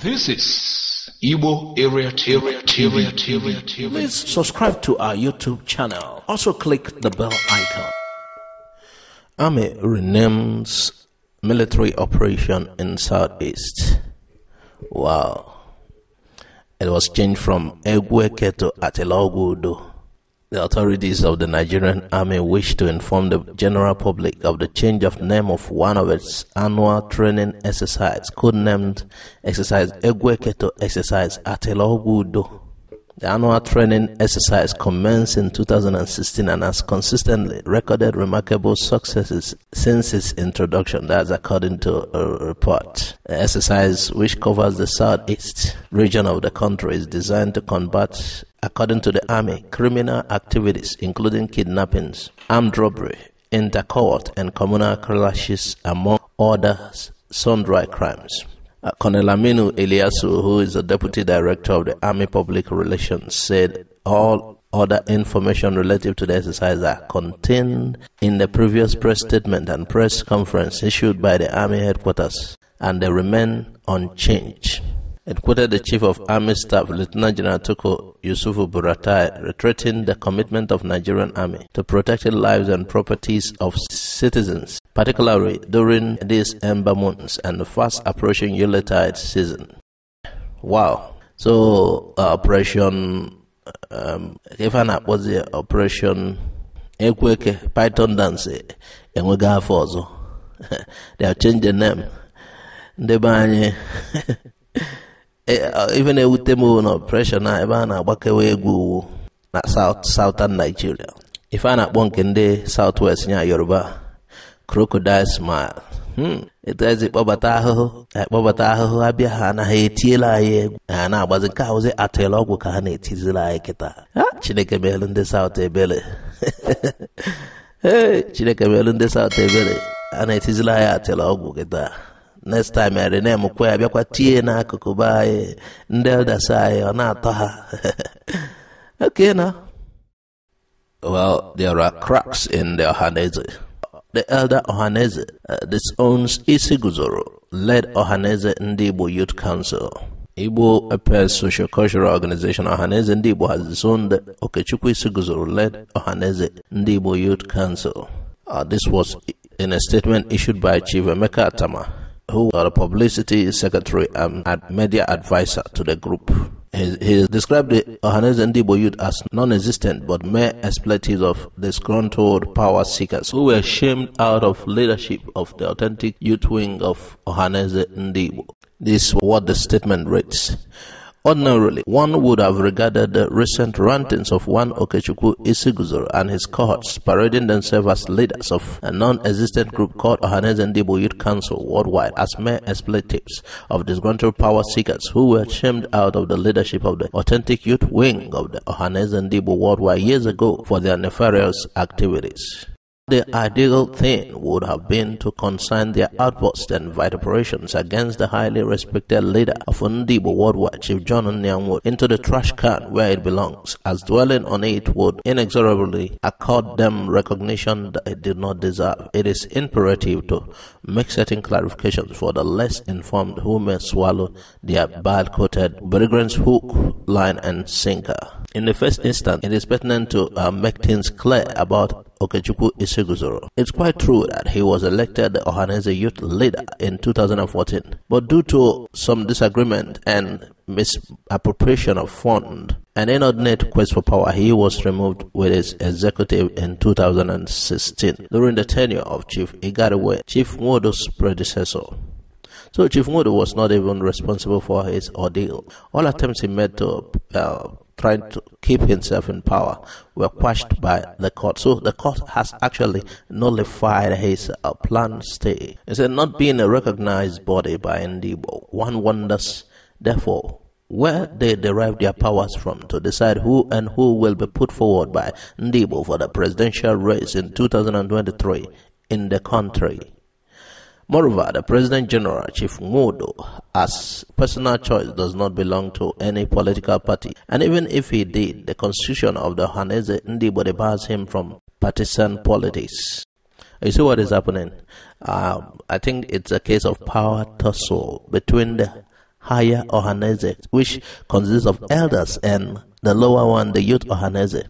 This is Igbo Area TV. TV, TV, TV. Please subscribe to our YouTube channel. Also click the bell icon. Army renames military operation in Southeast. Wow. It was changed from Egweke to Atelogudo. The authorities of the Nigerian Army wish to inform the general public of the change of name of one of its annual training exercises, codenamed Exercise Egweketo Exercise Atelobudo. The annual training exercise commenced in 2016 and has consistently recorded remarkable successes since its introduction. That's according to a report. The exercise, which covers the southeast region of the country, is designed to combat, according to the Army, criminal activities including kidnappings, armed robbery, intercohort, and communal clashes, among others, sundry crimes. Uh, Colonel Aminu Eliasu, who is the Deputy Director of the Army Public Relations, said all other information relative to the exercise are contained in the previous press statement and press conference issued by the Army headquarters, and they remain unchanged. It quoted the Chief of Army Staff, Lieutenant General Toko Yusufu Buratai, retreating the commitment of Nigerian Army to protecting lives and properties of citizens particularly during these ember months and the fast approaching Yuletide season. Wow. So, uh, Operation um, was the Operation Equake Python Dance enwega afọ ọzọ. They have changed the name. Even be anyị ife Operation a ebe a na South Southern Nigeria. If I'm not nke ndị South Southwest, nya Yoruba. crocodile smile hmm. etu ezi kpọbata ahụhụ e, kpọbata ahụhụ abịa, bịa ha anaghị etiela anyị egwu ha na-agbazi nke ahụzi atịla ọgwụ ka ha na-etizila anyị kịta chineke meelu ndị saụt ebele chineke meelu ndị saụt ebele a na-etizila anyị atịla ọgwụ kịta next time eri na-emekwa ya bịakwa tie n'akụkụ be anyị ndị elders anyị ọ na-atọ ha okay na well there are cracks in the ọhaneze The elder Ohaneze uh, disowns Isi Guzoro, led Ohaneze Ndibo Youth Council. Igbo Appears Social Cultural Organization Ohaneze Ndibo has disowned Okechukwu Isi Guzoro, led Ohaneze Ndibo Youth Council. Uh, this was in a statement issued by Chief Emeka Atama, who was uh, the publicity secretary um, and media advisor to the group. He, he described the Ohanes and youth as non-existent but mere expletives of disgruntled power seekers who were shamed out of leadership of the authentic youth wing of Ohanes and This is what the statement reads. Ordinarily, one would have regarded the recent rantings of one Okechukwu Isiguzor and his cohorts parading themselves as leaders of a non-existent group called Ndibu Youth Council worldwide as mere expletives of disgruntled power seekers who were shamed out of the leadership of the authentic youth wing of the Ndibu worldwide years ago for their nefarious activities. The ideal thing would have been to consign their outbursts and vituperations against the highly respected leader of World War, Chief John Nyamwood, into the trash can where it belongs, as dwelling on it would inexorably accord them recognition that it did not deserve. It is imperative to make certain clarifications for the less informed who may swallow their bad-coated brigands' hook, line, and sinker. In the first instance, it is pertinent to uh, make things clear about Okechukwu Iseguzoro. It's quite true that he was elected the Ohanese youth leader in 2014, but due to some disagreement and misappropriation of fund, an inordinate quest for power, he was removed with his executive in 2016 during the tenure of Chief Igariwe, Chief Nwodo's predecessor. So Chief Nwodo was not even responsible for his ordeal. All attempts he made to uh, trying to keep himself in power were quashed by the court. So the court has actually nullified his uh, planned stay. Instead, not being a recognized body by Ndibo, one wonders, therefore, where they derive their powers from to decide who and who will be put forward by Ndibo for the presidential race in 2023 in the country. Moreover, the President General, Chief Ngodo, as personal choice does not belong to any political party, and even if he did, the constitution of the Hanese Ndibode bars him from partisan politics. You see what is happening? Um, I think it's a case of power tussle between the higher Ohanese, which consists of elders, and the lower one, the youth Ohanese.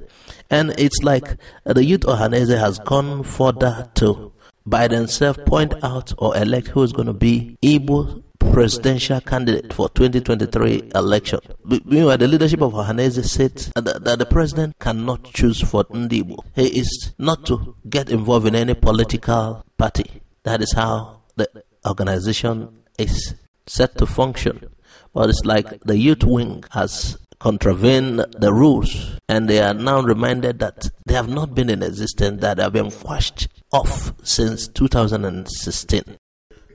And it's like the youth Ohanese has gone further to by themselves point out or elect who is going to be Igbo presidential candidate for 2023 election. Meanwhile, the leadership of Ohaneze said that, that, the president cannot choose for Ndibo. He is not to get involved in any political party. That is how the organization is set to function. But it's like the youth wing has contravene the rules and they are now reminded that they have not been in existence, that they have been quashed off since 2016.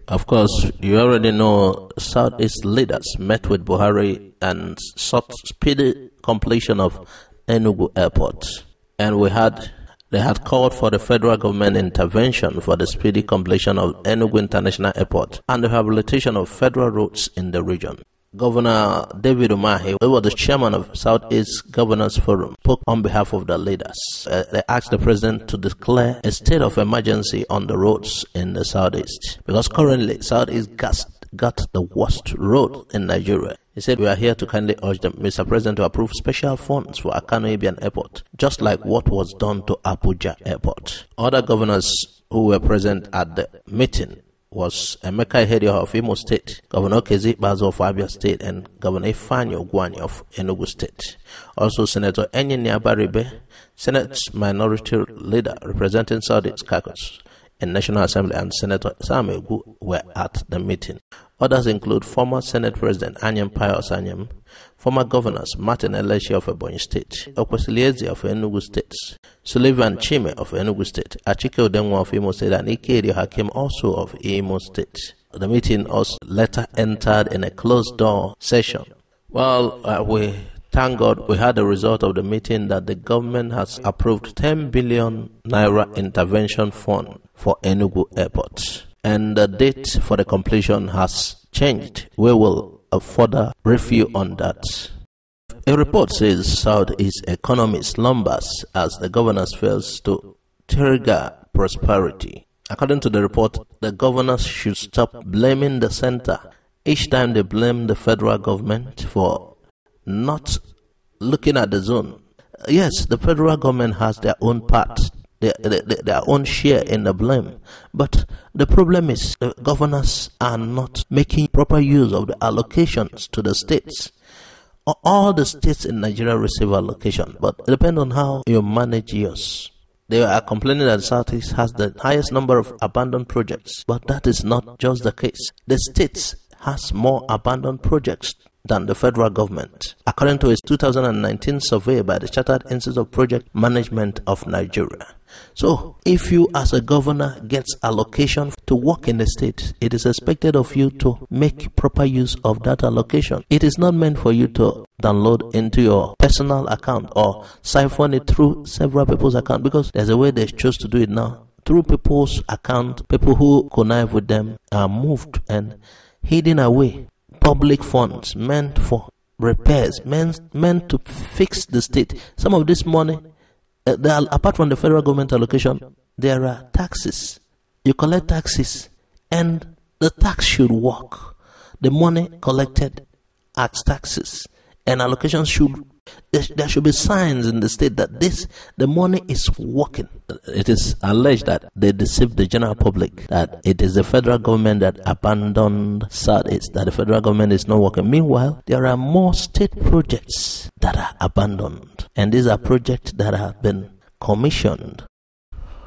Of course, you already know Southeast leaders met with Buhari and sought speedy completion of Enugu Airport. And we had they had called for the federal government intervention for the speedy completion of Enugu International Airport and the rehabilitation of federal roads in the region. Governor David Umahi, who was the chairman of Southeast Governors Forum, spoke on behalf of the leaders. Uh, they asked the president to declare a state of emergency on the roads in the Southeast because currently Southeast got, got the worst road in Nigeria. He said, We are here to kindly urge the Mr. President to approve special funds for Akano Ibian Airport, just like what was done to Abuja Airport. Other governors who were present at the meeting was Emeka Ihede of Imo State, Governor Kezi Bazo of Abia State, and Governor Ifani Ogwani of Enugu State. Also, Senator Enyinia Baribe, Senate Minority Leader representing South East Caucus in National Assembly, and Senator Sam were at the meeting. Others include former Senate President Anyam Pius Anyam, former governors Martin Eleshi of Ebonyi State, Okwesilieze of Enugu State, Sullivan Chime of Enugu State, Achike Odenwa of Imo State, and Ikeri Hakim also of Imo State. The meeting also later entered in a closed door session. Well, uh, we thank God we had the result of the meeting that the government has approved 10 billion naira intervention fund for Enugu Airport and the date for the completion has changed. We will further review on that. A report says Southeast economy slumbers as the governor fails to trigger prosperity. According to the report, the governors should stop blaming the center each time they blame the federal government for not looking at the zone. Yes, the federal government has their own part their, their own share in the blame. But the problem is the governors are not making proper use of the allocations to the states. All the states in Nigeria receive allocation, but it depends on how you manage yours. They are complaining that the Southeast has the highest number of abandoned projects, but that is not just the case. The states has more abandoned projects than the federal government, according to a 2019 survey by the Chartered Institute of Project Management of Nigeria. So, if you as a governor gets allocation to work in the state, it is expected of you to make proper use of that allocation. It is not meant for you to download into your personal account or siphon it through several people's account because there's a way they choose to do it now. Through people's account, people who connive with them are moved and hidden away public funds meant for repairs, meant, meant to fix the state. Some of this money, uh, are, apart from the federal government allocation, there are taxes. You collect taxes, and the tax should work. The money collected as taxes and allocations should there should be signs in the state that this the money is working. It is alleged that they deceived the general public that it is the federal government that abandoned SADS, that the federal government is not working. Meanwhile, there are more state projects that are abandoned, and these are projects that have been commissioned.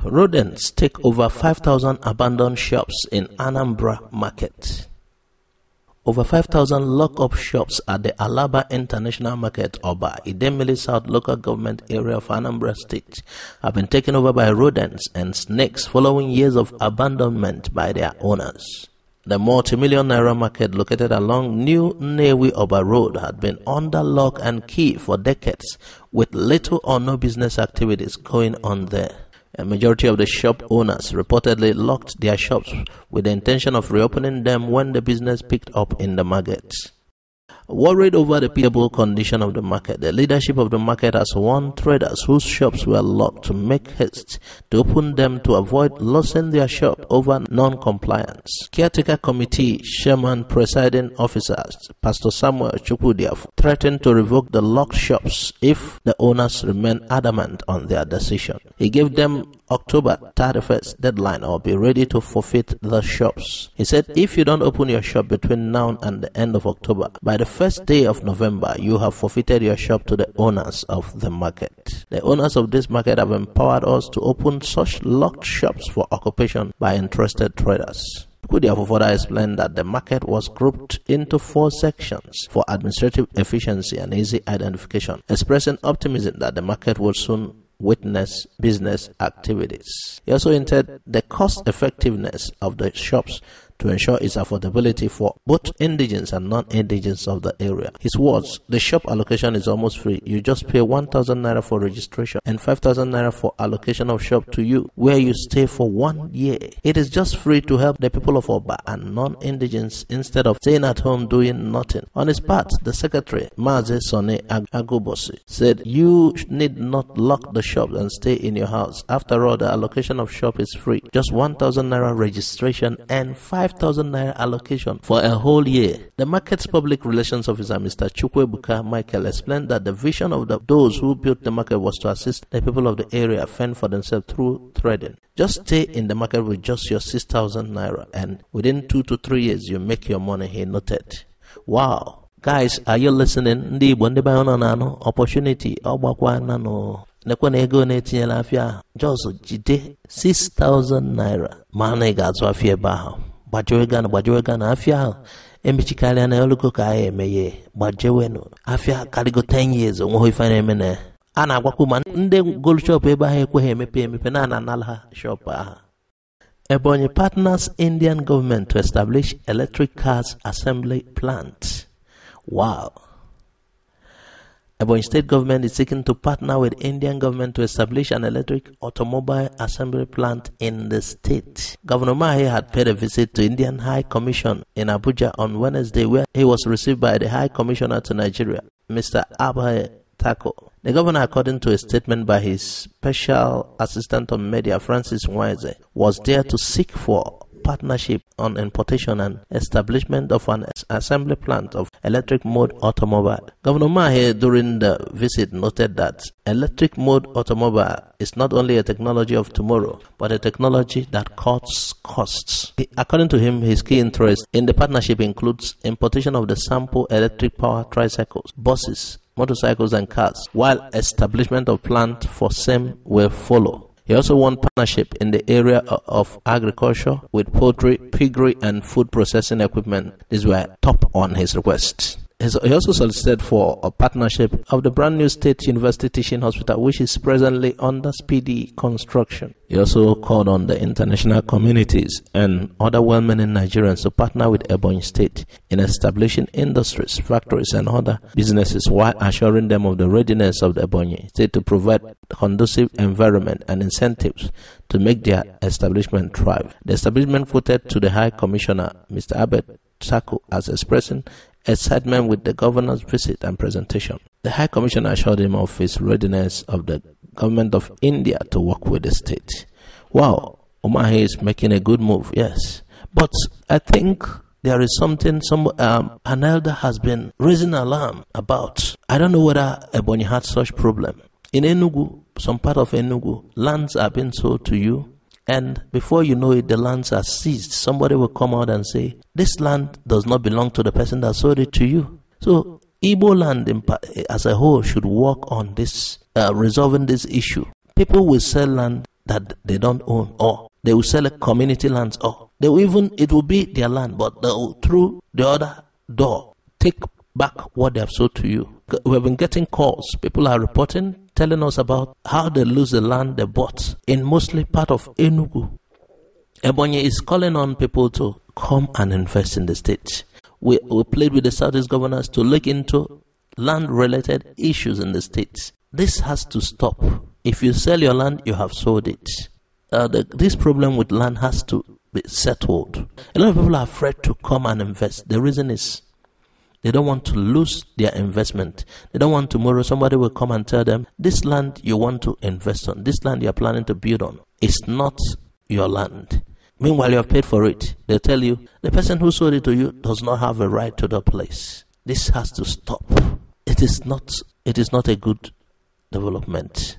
Rodents take over 5,000 abandoned shops in Anambra market. Over 5,000 lock-up shops at the Alaba International Market, Oba, Idemili South Local Government Area of Anambra State, have been taken over by rodents and snakes following years of abandonment by their owners. The multi-million naira market located along New Newi Oba Road had been under lock and key for decades, with little or no business activities going on there. A majority of the shop owners reportedly locked their shops with the intention of reopening them when the business picked up in the market. Worried over the pitiable condition of the market, the leadership of the market has warned traders whose shops were locked to make haste to open them to avoid losing their shop over non-compliance. Caretaker Committee Chairman Presiding Officers Pastor Samuel Chukwudiaf threatened to revoke the locked shops if the owners remain adamant on their decision. He gave them October 31st deadline or be ready to forfeit the shops. He said, if you don't open your shop between now and the end of October, by the first day of November, you have forfeited your shop to the owners of the market. The owners of this market have empowered us to open such locked shops for occupation by interested traders. Could further explained that the market was grouped into four sections for administrative efficiency and easy identification, expressing optimism that the market will soon witness business activities. He also hinted the cost effectiveness of the shops to ensure its affordability for both indigents and non-indigents of the area. His words, the shop allocation is almost free. You just pay 1,000 naira for registration and 5,000 naira for allocation of shop to you where you stay for one year. It is just free to help the people of Oba and non-indigents instead of staying at home doing nothing. On his part, the secretary, Maze Sone Agubosi said, you need not lock the shop and stay in your house. After all, the allocation of shop is free. Just 1,000 naira registration and 5 5,000 naira allocation for a whole year. The market's public relations officer, Mr. Chukwebuka Michael, explained that the vision of the, those who built the market was to assist the people of the area fend for themselves through trading. Just stay in the market with just your 6,000 naira, and within two to three years, you make your money, he noted. Wow. Guys, are you listening? Ndị Igbo ndị nọ na-anụ opportunity ọgbakwa nanụ nekwa na ego na-etinyela afịa ahụ jide 6000 naira ma na ị ga-azụ gbajewe gana gbajewe gana afia ahụ emechikarịa na olugo ka agha emeghe gbajewenụ afia karịgo 10 years onweghị ife na-eme na a na-agwakwu ma ndị gold shop ebe ahụ ekweghị emepe emepe na ananala shop ahụ Ebonyi Partners Indian Government to Establish Electric Cars Assembly Plant. Wow. Ebony state government is seeking to partner with Indian government to establish an electric automobile assembly plant in the state. Governor Mahi had paid a visit to Indian High Commission in Abuja on Wednesday where he was received by the High Commissioner to Nigeria, Mr. Abhay Tako. The governor, according to a statement by his special assistant on media, Francis Wise, was there to seek for partnership on importation and establishment of an assembly plant of electric mode automobile. Governor Mahe during the visit noted that electric mode automobile is not only a technology of tomorrow, but a technology that cuts costs. According to him, his key interest in the partnership includes importation of the sample electric power tricycles, buses, motorcycles and cars, while establishment of plant for same will follow. He also won partnership in the area of agriculture with poultry, piggery, and food processing equipment. These were top on his requests. He also solicited for a partnership of the brand new State University Teaching Hospital, which is presently under speedy construction. He also called on the international communities and other well meaning Nigerians to partner with Ebony State in establishing industries, factories, and other businesses while assuring them of the readiness of the Ebony State to provide conducive environment and incentives to make their establishment thrive. The establishment voted to the High Commissioner, Mr. Abbott Saku, as expressing excitement with the governor's visit and presentation. The High Commissioner assured him of his readiness of the government of India to work with the state. Wow, Omahe is making a good move, yes. But I think there is something some um, an elder has been raising alarm about. I don't know whether Ebony had such problem. In Enugu, some part of Enugu, lands are being sold to you and before you know it, the lands are seized. Somebody will come out and say, This land does not belong to the person that sold it to you. So, Igbo land eh, as a whole should work on this, uh, resolving this issue. People will sell land that they don't own, or they will sell a community lands, or they will even, it will be their land, but they will, through the other door, take back what they have sold to you we've been getting calls. People are reporting, telling us about how they lose the land they bought in mostly part of Enugu. Ebonyi is calling on people to come and invest in the state. We, we played with the Southeast governors to look into land related issues in the state. This has to stop. If you sell your land, you have sold it. Uh, the, this problem with land has to be settled. A lot of people are afraid to come and invest. The reason is they don't want to lose their investment. They don't want tomorrow somebody will come and tell them, this land you want to invest on, this land you are planning to build on, is not your land. Meanwhile, you have paid for it. They tell you, the person who sold it to you does not have a right to the place. This has to stop. It is not, it is not a good development.